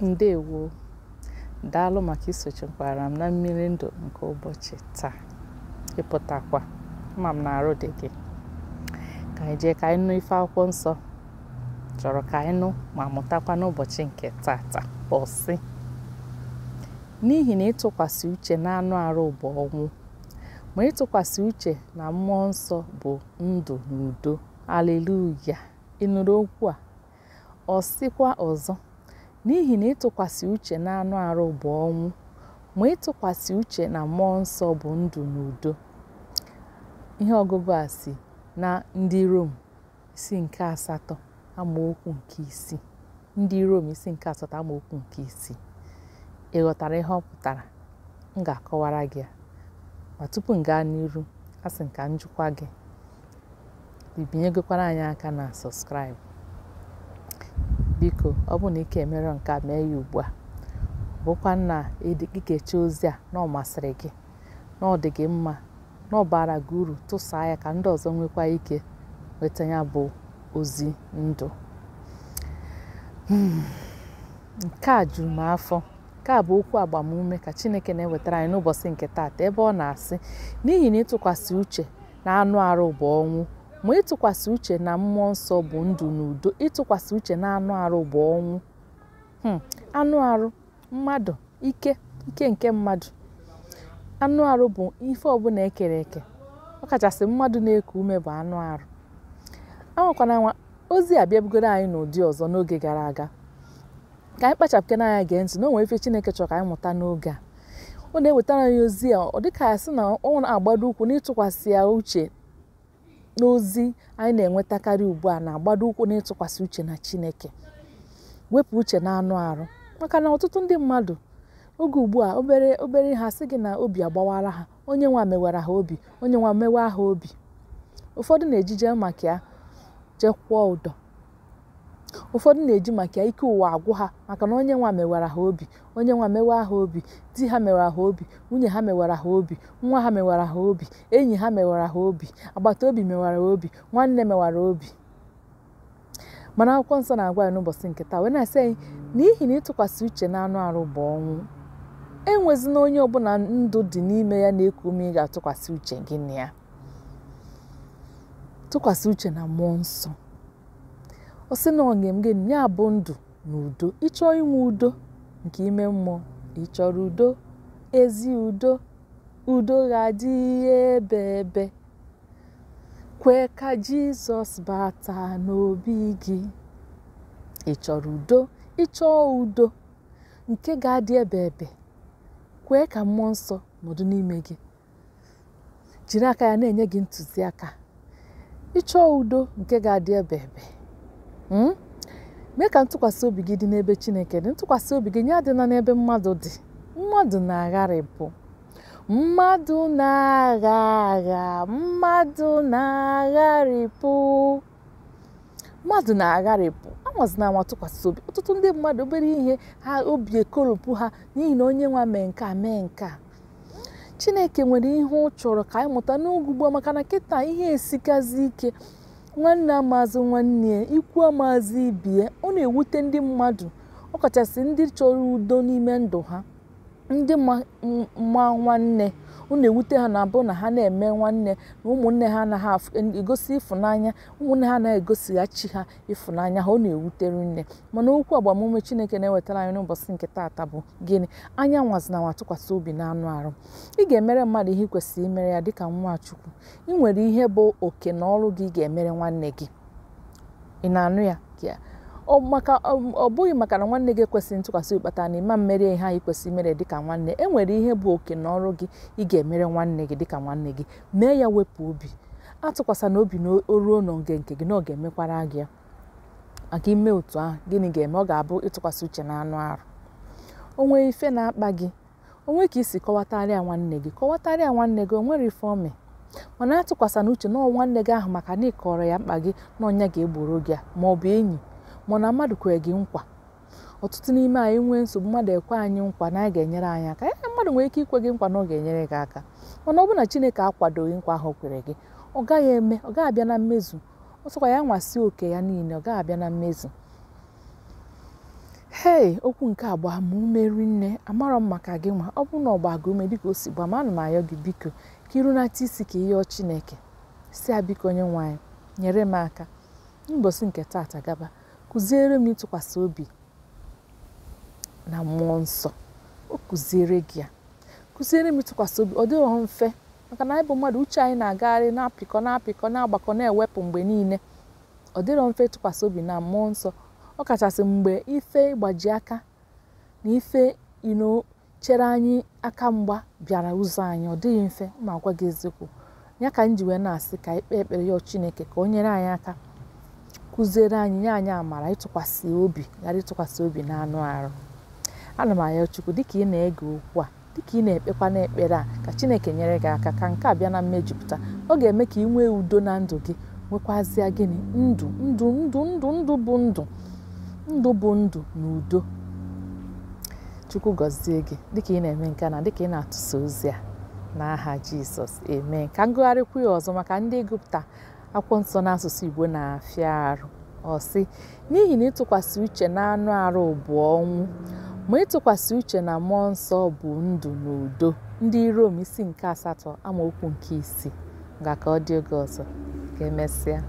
ndewo daalụ maka isochikwara m na mmiri ndụ nke ụbọchị taa ịpụtakwa ma m na-arụ dị gị ka anyị jee ka anyị nụ ife akwụkwọ nsọ chọrọ ka anyị nụ ma mụtakwa n'ụbọchị nke taa ọsị n'ihi na ịtụkwasị uche na anụ arụ bụ ọnwụ ma ịtụkwasị uche na mmụọ nsọ bụ ndụ na udo aleluya ịnụrụ okwu a ọ sịkwa ọzọ n'ihi na ịtụkwasị uche na anụ arụ bụ ọnwụ ma ịtụkwasị uche na mmụọ nsọ bụ ndụ na udo ihe ọgụgụ a si na ndị rom isi nke asatọ amaokwu nke ndị rom isi nke asatọ amaokwu nke isii ị ghọtara ihe ọ pụtara m ga-akọwara gị ma tupu m gaa n'iru a sị m ka njikwa gị bibinyegokwara anyị aka na sọskraịbụ biko ọ bụ na ike emere nke a mee ya ugbu a bụkwa na ikecha ozi a na ọ masịrị gị na ọ dị gị mma na ọ bara gị uru tụsaa ya ka ndị ọzọ nwekwa ike nweta ya bụ ozi ndụ hmm. nke a juru m afọ nke a bụ okwu agbamume ka Chineke na-ewetara anyị n'ụbọchị nke taata ebe ọ na-asị n'ihi na ịtụkwasị uche na anụ arụ bụ ọnwụ ma ịtụkwasị uche na mmụọ nsọ bụ ndụ na udo ịtụkwasị uche na anụ arụ bụ ọnwụ hmm, anụ arụ mmadụ ike ike nke mmadụ anụ arụ bụ ife ọbụla ekere eke ọkachasị mmadụ na-eku ume bụ anụ arụ anwakwana nwa ozi abịabugoro anyị n'ụdị ọzọ n'oge gara aga ka anyị kpachapụke n'anya gee ntị na o nwere ife Chineke chọrọ ka anyị mụta n'oge a ọ na-ewetara anyị ozi a ọ dịka ya sị na ọ na-agbado ụkwụ n'ịtụkwasị ya uche n'ozi anyị na-enwetakarị ugbu a na-agbado ụkwụ n'ịtụkwasị uche na Chineke wepụ uche na anụ arụ maka na ọtụtụ ndị mmadụ oge ugbu a obere obere ha sị gị na obi agbawara ha onye nwa mewara ha obi onye nwa mewa ha obi ụfọdụ na-ejije maka ya jekwuo ụdọ ụfọdụ na-eji maka ike ụwa agwụ ha maka na onye nwa mewara ha obi onye nwa mewa ha obi di ha mewara ha obi nwunye ha mewara ha obi nwa ha mewara ha obi enyi ha mewara ha obi agbata obi mewara obi nwanne mewara obi mana akwụkwọ nsọ na-agwa anyị n'ụbọchị nke taa wee na-asị anyị n'ihi na ịtụkwasị uche na anụ arụ bụ ọnwụ enwezina onye ọbụla ndụ dị n'ime ya na-eku ume ị ga-atụkwasị uche gị na ya tụkwasị uche na mmụọ nsọ ọ sị na gị ya bụ ndụ na udo ịchọọ inwe udo nke ime mmụọ ịchọrọ udo ezi udo udo ga adị ebe ebe kwee ka jizọs bata n'obi gị ịchọrọ udo ịchọọ udo nke ga-adị ebe ebe kwee ka mmụọ nsọ nọdụ n'ime gị jiri aka ya na-enye gị ntụziaka ịchọọ udo nke ga-adị ebe ebe Hmm? mee ka ntụkwasị obi gị dị n'ebe Chineke dị ntụkwasị obi gị nye adịla n'ebe mmadụ dị mmadụ na-agharịpụ mmadụ na-agha agha mmadụ na-agharịpụ mmadụ na-agharịpụ anwazina anwa ntụkwasị obi ọtụtụ ndị mmadụ obere ihe ha obi ekoropụ ha n'ihi na onye nwa mee nke a mee nke a Chineke nwere ihe ọ chọrọ ka anyị mụta n'ugwu gboo maka na kịta ihe esikazi ike nwanne amazụ nwanne ikwu amazụ ibie ọ na-ewute ndị mmadụ ọkachasị ndị chọrọ udo n'ime ndụ ha ndị mma nwanne unu ewute ha na-abụ na ha na-eme nwanne na ụmụnne ha anaghị egosi ịfụnanya ụmụnne ha anaghị egosighachi ha ịfụnanya ha ọ na-ewutere nne mana okwu agbamume Chineke na-ewetara anyị n'ụbọchị nke taata bụ gịnị anya nwazina nwa tụkwasị obi na anụ arụ ị ga-emere mmadụ ihe kwesịrị imere ya dịka chukwu ị nwere ihe bụ oke na ọrụ gị ị ga-emere nwanne gị ị na-anụ ya ọ bụghị maka na nwanne gị ekwesịghị ntụkwasị obi kpatara na ịma mmeri ihe anyị kwesịrị imere dịka nwanne e nwere ihe bụ oke na ọrụ gị ị ga-emere nwanne gị dịka nwanne gị mee ya wepụ obi atụkwasana obi na oruo n'oge nke gị na ọ ga-emekwara gị maka ime otu ahụ gịnị ga-eme ọ ga-abụ ịtụkwasị uche na anụ arụ onwe ife na-akpa gị onwe ka isi kọwatarịa nwanne gị kọwatarịa nwanne gị onwere ife ome mana na uche na nwanne gị ahụ maka na ịkọrọ ya mkpa gị na ọnya ga-egboro gị ma ọ bụ enyi mana mmadụ kwere gị nkwa ọtụtụ n'ime anyị nwee nsogbu mmadụ ekwe anyị nkwa na a ga-enyere anyị aka ee eh, mmadụ nwere ike ikwe gị nkwa na ọ ga-enyere gị aka mana ọ bụrụ na chineke akwadoghị nkwa ahụ kwere gị ọ gaghị eme ọ gaghị abịa na mmezu ọ sọkwa ya nwasị oke ya niile ọ gaghị abịa na mmezu hei okwu nke a gbaa m ume rinne amarọ m maka gị nwa ọ bụrụ na ọ gbaa gị ume dịka o si gbaa m ana m ayọ gị biko ka irunata isi ka ihe chineke si a biko onye nwe nyere m aka n'ụbọchị nke taata gaba kụziere m ịtụkwasị obi na mmụọ nsọ o kụziere gị ya kụziere m ịtụkwasị obi ọ dịghị mfe maka na anyị bụ mmadụ uche anyị na-agagharị na-apịkọ na-apịkọ na-agbakọ na-ewepụ mgbe niile ọ dịrọ mfe ịtụkwasị obi na mmụọ nsọ ọ kachasị mgbe ife ịgbaji aka na ife ino chere anyị aka mgba bịara ụzọ anyị ọ dịghị mfe ma gwa gị eziokwu ya ka m ji wee na-asị ka anyị kpee ekpere yọọ Chineke ka o nyere anyị aka kụziere anyị nye anyị amara ịtụkwasị obi ghara ịtụkwasị obi na anụ arụ ana m arịọ Chukwu dịka ị na-ege okwu a dịka ị na-ekpekwa n'ekpere a ka Chineke nyere gị aka ka nke a bịa na mmejupụta ọ ga-eme ka ị nwee udo na ndụ gị nwekwazịa gịnị ndụ ndụ ndụ ndụ ndụ bụ ndụ ndụ bụ ndụ na udo Chukwu gọzie gị dịka ị na-eme nke na dịka ị na-atụsa ozi a n'aha Jizọs eme ka ngụgharịkwu ya ọzọ maka ndị gụpụta akwụkwọ nsọ n'asụsụ igbo na-afịa arụ ọsị n'ihi na ịtụkwasị uche na anụ arụ bụ ọnwụ ma ịtụkwasị uche na mmụọ nsọ bụ ndụ na udo ndị rom isi nke asatọ amaokwu nke isii ga ka ọ dị oge ọzọ ka emesịa